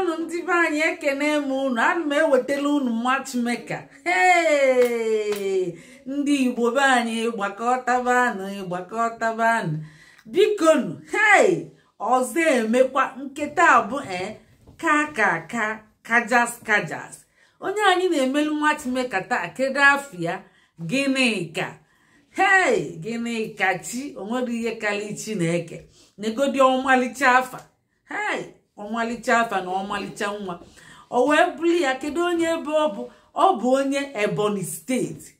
onu ndị be anyị ekene m unu ana m ewetala unu matchmaker Chimeka ndị Igbo be anyị gbakọtabanụ gbakọtabanụ bikonu hei ọzọ emekwa nketa abụ e ka ka kajas kajas onye anyị na-emelu matchmaker taa kedu afọ ya gịnị ka hei gịnị ka chi onwere ihe karịa Chineke negodi ọmalịcha afa hei ọmalịcha afa na ọmalịcha nwa o wee bụrụ ya kedu onye ebe ọ bụ ọ bụ onye ebonyi steeti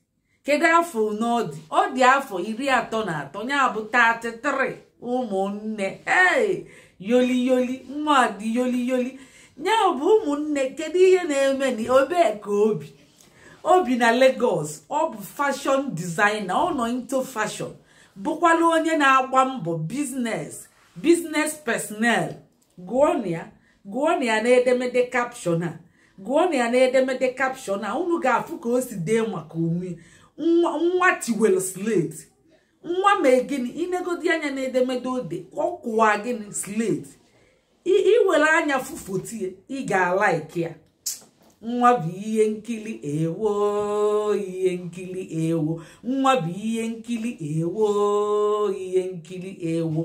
kedu afọ na ọ dị ọ dị afọ iri atọ na atọ ya bụ 33 ụmụnne ee yoliyoli mmadụ yoliyoli ya bụ ụmụnne kedu ihe na-eme obe ka obi obi na Lagos ọ bụ fashion designer ọ nọ into fashion bụkwala onye na-agba mbọ biznes biznes personel gụọnụ ya na ya n'edemede kapshọn a gụọnụ ya n'edemede kapshọn a unu ga-afụ ka o si dee maka onwe nwa tiwel slate nwa mee gịnị inegodi anya n'edemede ode ọ kụwa gịnị slate iwere anya fụfotie ị ga-alaiki ya nwa bụ ihe nkiri ewo ihe ewo nwa bụ ihe nkiri ewo ihe nkiri ewo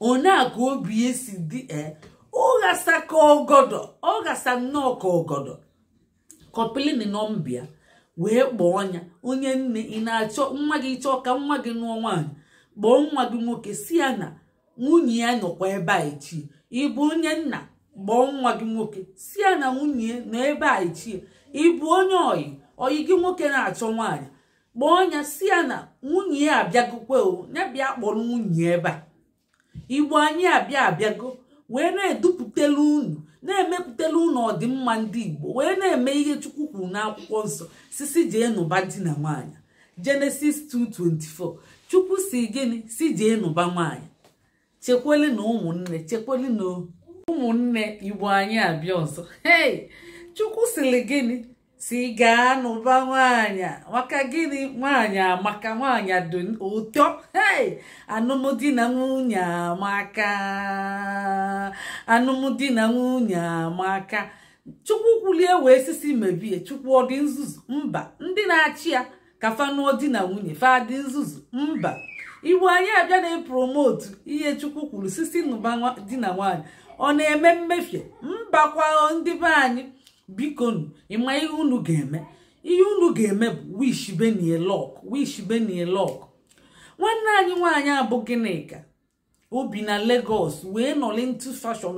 ka obi esi dị e ọghasa ka ọghasa nnọọ ka ogodo kọpilini nọmbịa wee kpọọ ọnya onye nne ị na-achọ nwa gị chọọ ka nwa gị nụọ nwaanyị kpọọ nwa gị nwoke si ya na nwunye ya nọkwa ebe a echi ịbụ onye nna kpọọ nwa gị nwoke si ya na nwunye nọ ebe a echi ịbụ onye oyi oyi gị nwoke na-achọ nwaanyị kpọọ ọnya si ya na nwunye ya abịagokwe ya bịa kpọrọ nwunye ebe a igbo anyị abịa abịago wee na-edupụtelu unu na-emepụtelu ụnụ ọdịmma ndị igbo wee na-eme ihe chukwu kwuru n'akwụkwọ nsọ sisi jee nụba di na nwaanyị jenesis 2:24 chukwu si gịnị si jee nụba nwaanyị chekweli na ụmụnne chekweli na ụmụnne igbo anyị abịa ọzọ chukwu siri gịnị si gaa n'ụba nwaanyị nwaka gịnị nwaanyị amaka nwaanyị dị ụtọ hei na nwunye amaka anụmdi na nwunye amaka chukwu kwulie wee sisi mebie chukwu ọ dị nzuzu mba ndị na-achị ya ka fanụọ di na nwunye fa dị nzuzu mba iwu anyị abịa na-epromotu ihe chukwu kwuru sisi n'ụba di na nwaanyị ọ na-eme mmefie mbakwa ndị be anyị biko nu ịma ihe unu ga-eme ihe unu ga-eme bụ wish benie lọk wish benie lọk nwanne anyị nwaanyị abụ gịnịka obi na Lagos wee nọlị ntị fashọn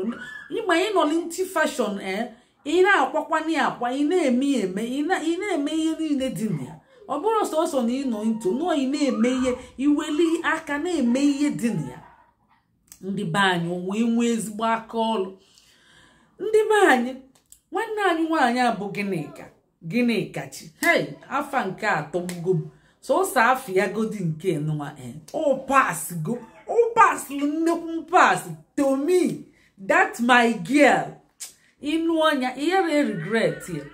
ịma ị nọlị ntị fashọn e ị eh? na-akwakwana ya akwa ị na-eme eme ị na-eme ihe niile dị na ya ọ bụrụ sọsọ na ịnọ nto nọọ ị na-eme ihe iweli aka na-eme ihe dị na ya ndị be anyị wee nwee ezigbo aka ọlụ ndị be anyị nwanne anyị nwaanyị abụ gịnịka gịnịka chi hei afa nke atọgbugo m sọsọ afọ ya godi nke nwa go ọpaslu nnekwu pas tomi dat my girl ịnụ ọnya ihere regret ya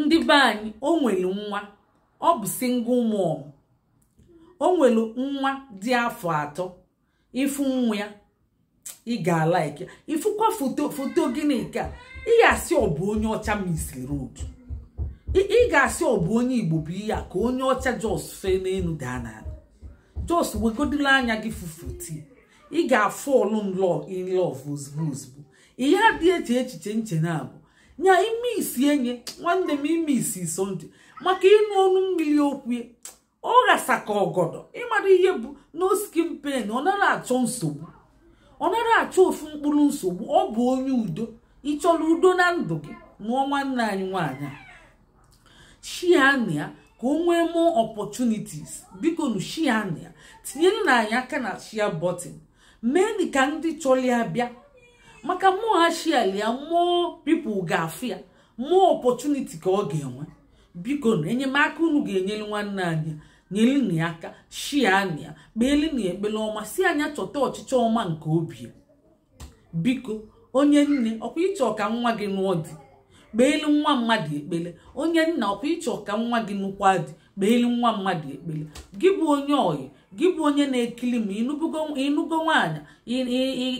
ndị be anyị o nwere nwa ọ bụ single mom o nwere nwa dị afọ atọ ifu nwa ya ị ga-alaiki ifụkwa foto foto gịnị ị ga-asị ọ bụ onye ọcha Miss Road ị ga-asị ọ bụ onye Igbo bụ ihe ka onye ọcha jos fee n'elu daa na jos wegodola anya gị fufuti ị ga-afọlụ nlọ in love ozugbo ozugbo ihe adị eche echiche nche na abụ nya ime isi enye nwanne m ime isi sonde maka ịnụ ọnụ mmiri okwu ọ ghasa ka ọgọdọ ịmara ihe bụ no skin ọ naghị achọ nsogbu ọ nara achọ ofu mkpụrụ nsogbu ọ bụ onye udo ị chọrọ udo na ndụ gị nụọ nwanne anyị nwaanyị shiania ka o nwee mụọ opportunities biko nu shiania tinye nna anyị aka na shia botin mee ka ndị chọrọ ya bịa maka mmụọ ha shialia mmụọ pipụl ga-afụ ya mmụọ opportunity ka ọ ga-enwe biko na enyemaka unu ga-enyere nwanne anyị nyelinu ya aka shianu ya kpeelinu ya ekpele ọma si anya chọta ọchịchọ ọma nke obi biko onye nne ọkwa ịchọ ka nwa gị nụọ dị kpeelu nwa mmadụ ekpele onye nna ọkwa ịchọ ka nwa gị nụkwa dị kpeelu nwa mmadụ ekpele gị bụ onye oyi gị bụ onye na-ekili ma ịnụgo nwaanyị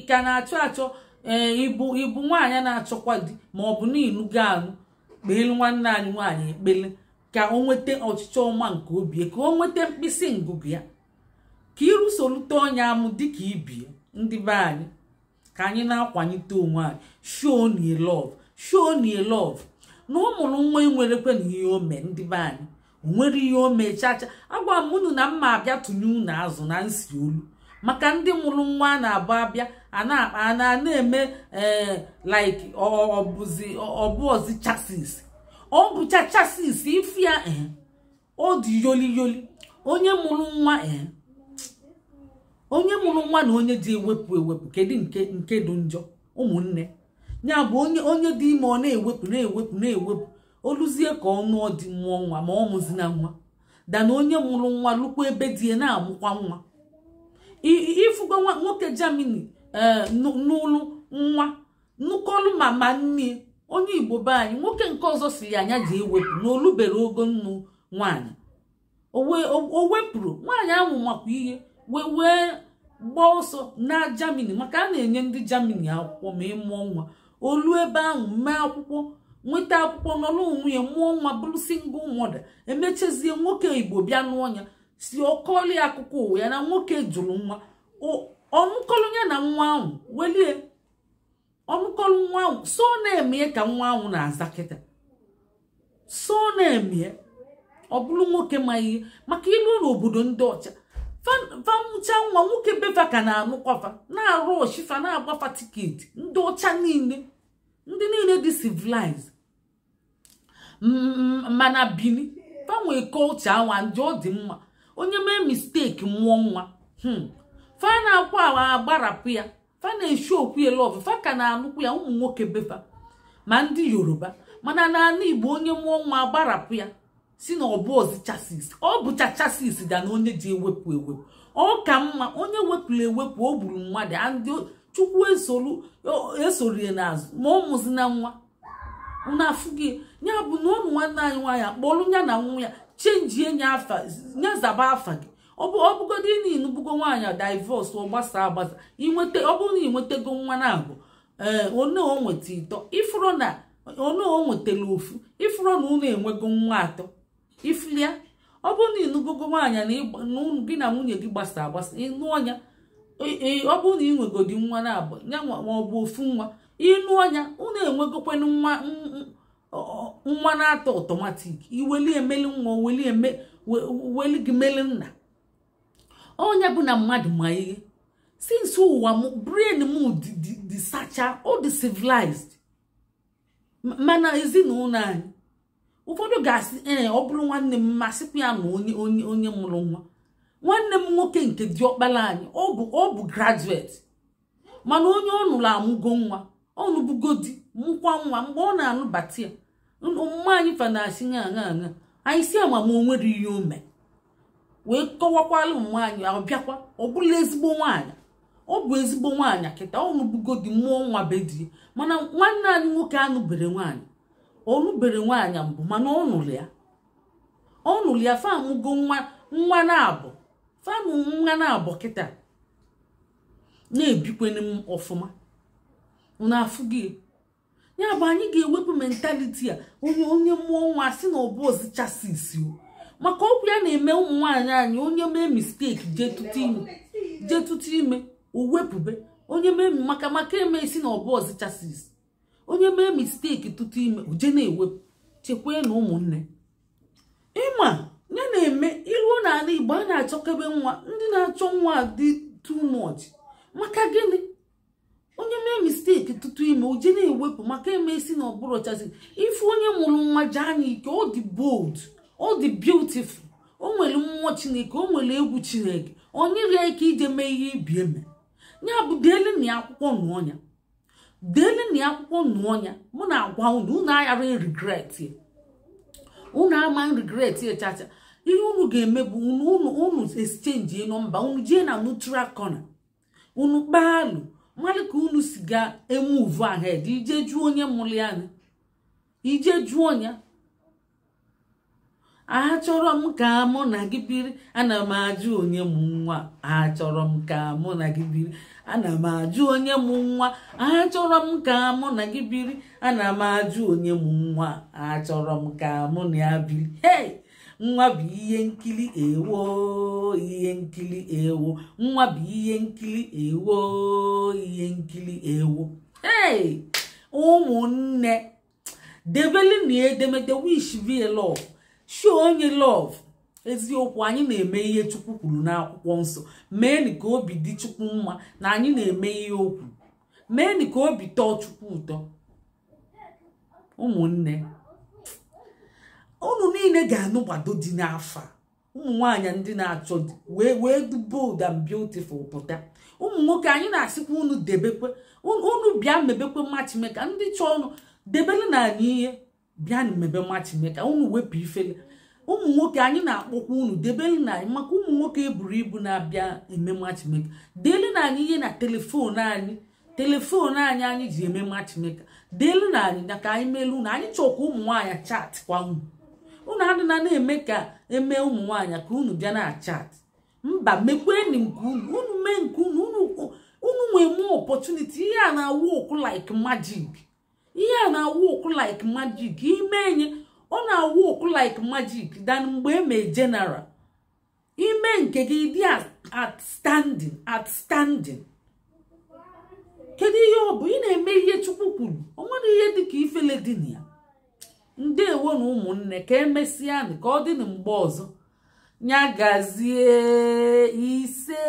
ka na-achọ achọ e, ịbụ ịbụ nwaanyị na-achọkwa di ma ọ bụ na ịnụgo anụ kpeelu nwanne anyị nwaanyị ekpele ka o nweta ọchịchọ ọma nke obi ka o nweta mkpịsị ngụgụ ya ka ịrụsolite onye amụ dịka ibie ndị be anyị ka anyị na-akwanyite onwe anyị show ni love show love na ụmụrụ nwa nwa enwerekwe na ihe o mee ndị be anyị onwere ihe o mee chacha agwa m unu na mma abịa tụnye unu azụ na nsi olu maka ndị mụrụ nwa a na-abụ abịa a na-akpa na akpa a na eme ee eh, like ọbụzi ọbụọzi chasis ọ bụchacha sis ife ya eh, ọ dị yoli yoli onye mụrụ nwa eh, onye mụrụ nwa na onye dị ewepụ ewepụ kedu nke nke dị njọ ụmụnne ya bụ onye onye dị ime ọ na-ewepụ na-ewepụ na-ewepụ oluzie ka ọ nụọ dị mụọ nwa ma ọ mụzina nwa dana onye mụrụ nwa lụkwa ebe dị ya na-amụkwa nwa ịfụgo nwoke jamini ee eh, n'ụlụ nwa nnukọlụ mama nne onye igbo be anyị nwoke nke ọzọ si ya anya ji ewepụ na olubere ogo nnu nwaanyị o wepụrụ nwaanyị ahụ makwa ihe wee wee gbaa ọsọ na jamini maka a na-enye ndị jamini akwụkwọ ma ịmụọ nwa olu ebe ahụ mee akwụkwọ nweta akwụkwọ nọrọ onwe ya mụọ nwa bụrụ single mother emechezie nwoke igbo bịa n'ọnya si ọkọli akụkọ ụwa ya na nwoke jụrụ nwa ọnụkọrọ ya na nwa ahụ welie ọmụkọrọ nwa ahụ so na-emie ka nwa ahụ na-aza kịta so na-emie ọ bụrụ nwoke ma ihe maka ilu n'obodo ndị ọcha famụcha nwa nwoke befa ka na-anụkwafa na-arụ oshifa na-agbafa tiketi ndị ọcha niile ndị niile dị civilized mana bini fanwe kọlcha awa ndị ọ dị mma onye mee misteki mụọ nwa hmm. fa na-akwa ya fa na-eshi okwu ya lọvụ fa ka na-anụkwu ya ụmụ nwoke befa ma ndị yoruba mana n'ala igbo onye mụọ nwa agbarapụ ya si na ọ chasis ọ bụcha chasis da na onye ji ewepụ ewepụ ọ ka mma onye wepụrụ ewepụ o gburu mmadụ ndị chukwu esorie n'azụ ma ọ na nwa unu afụghị ya bụ na ụmụ nwanne anyị nwaanyị akpọrọ ya na nwa ya chenjie nya afa nya zaba afa gị ọ bụgodị na ịnụbugo nwaanyị divọs ọ agbasa inweta ọ bụrụ na ịnwetago nwa na-abụ ee eh, ịtọ ifụrụ na one o nwetara ofu ifụrụ na ụlọ enwego nwa atọ ifụlịa ọ bụrụ na ịnụgogo nwaanyị na gị na nwunye gị gbasa agbasa ịnụọ ya ọ bụrụ na ịnwegodi nwa na-abụ ya ma ọ bụ ofu nwa ịnụ ọnya ụlọ enwegokwanụ nwa nwa na-atọ ọtọmatik iweli emeli nwa weli gị meli nna onye bụ na mmadụ ma ihe sins ụwa m brain m dị sacha ọ civilized mana ezinụlọ anyị ụfọdụ ga-asị ee eh, ọ bụrụ nwanne m masịkwa ya na onye onye onye mụrụ nwa nwanne m nwoke nke diọkpala anyị ọ bụ ọ bụ graduate mana onye ọ nụrụ amụgo nwa ọ nụbugo di mụkwa nwa mgbe ọ na-anụbata ya mma anyị fa na aṅa ṅa anyị si ama m o nwere ihe o mee wee kọwakwala nwaanyị ahụ bịakwa ọ bụla ezigbo nwaanyị ọ bụ ezigbo nwaanyị kịta ọnụbugodi mmụọ nwa bedi mana nwanne anyị nwoke anụbere nwaanyị ọnụbere nwaanyị mbụ mana ọnụlụ ya ọnụlụ ya famụgo nwa nwa na-abụ famụ nwa na-abụ kịta na-ebikweni m ọfụma na-afụ gị ya bụ anyị ga-ewepụ mentaliti a onye onye mmụọ nwa si na ọbụ ozichasi isi o maka okwu ya na-eme ụmụ nwaanyị anyị onye mee misteki jee tụtụ ime owepụbe onye mee maka maka eme isi na ọbụ ọzichasis onye mee misteki tụtụ ime oje na-ewepụ chekwee na ụmụnne ịma ya na-eme iruo n'ala Igbo a na-achọkebe nwa ndị na-achọ nwa dị too much maka gịnị onye mee misteki tụtụ ime oje na-ewepụ maka eme isi na ọbụrụ ọchasị ife onye mụrụ nwa jee anya ike ọ dị bold ọ dị beautiful o nwere mmụọ chineke o nwere egwu chineke onye rie ike ije mee ihe ibi eme ya bụ deeleni akwụkwọ nụọnya deeleni akwụkwọ nụọnya mụ na-agwa unu unu aghara regret unu ama regret chacha ihe unu ga-eme bụ unu exchange nọmba unu jee na neutral corner unu kpaalụ mmadụ ka unu si ga emuvu ahed ije jụọ onye mụrụ anya ije jụọ ya achọrọ m ka mụ na gị biri ana m ajụ onye m nwa achọrọ m ka mụ na gị biri ana m ajụ onye m nwa achọrọ m ka mụ na gị biri ana m ajụ onye m nwa achọrọ m ka mụ na ya biri hey nwa bụ ihe nkili ewo ihe nkiri ewo nwa bụ ihe nkili ewo ihe nkiri ewo hey ụmụnne debelinu edemede wish vilọ show onye lọv eziokwu anyị na-eme ihe chukwu kwuru n'akwụkwọ nsọ meenị ka obi dị chukwu mma na anyị na-eme ihe okwu meenị ka obi tọọ chukwu ụtọ ụmụnne ụnụ niile ga-anụgbado dị n'afọ a ụmụ nwaanyị ndị na-achọ wee wee du bold and beautiful pụta ụmụ nwoke anyị na-asịkwa unu debekwe unu bịa mebekwe machimeka ndị chọọ ọnụ debere na anyị ihe bịa na mmebema chineke unu wepụ ifele ụmụ nwoke anyị na-akpọkwa unu debelu na anyị maka ụmụ nwoke eburu ibu na-abịa eme chineke deelu na anyị ihe na telefon anyị telefon anyị anyị ji eme chineke deelu na anyị na ka anyị meelu unu anyị chọkwa ụmụ nwaanyị chat kwa unu unu adịna na-eme ka emee ụmụ nwaanyị ka unu bịa na chat mba mekwenu nke unu unu mee nke unu unu nwee mụọ ọpọtuniti ihe a na-awụ ọkụ like magic ihe a na-awụkụ like magic ime enye ọ na-awụ ụkwụ like majik dan mgbe eme jenara ime nke gị dị at standịn. kedu ihe ọ bụ ị na-eme ihe chukwu kwuru ọ nwere ihe dịka ifele dị na ya ndewo na ụmụnne ka emesịa ka ọ dị na mgbe ọzọ nyagazie ise